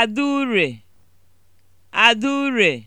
Adaure, Adaure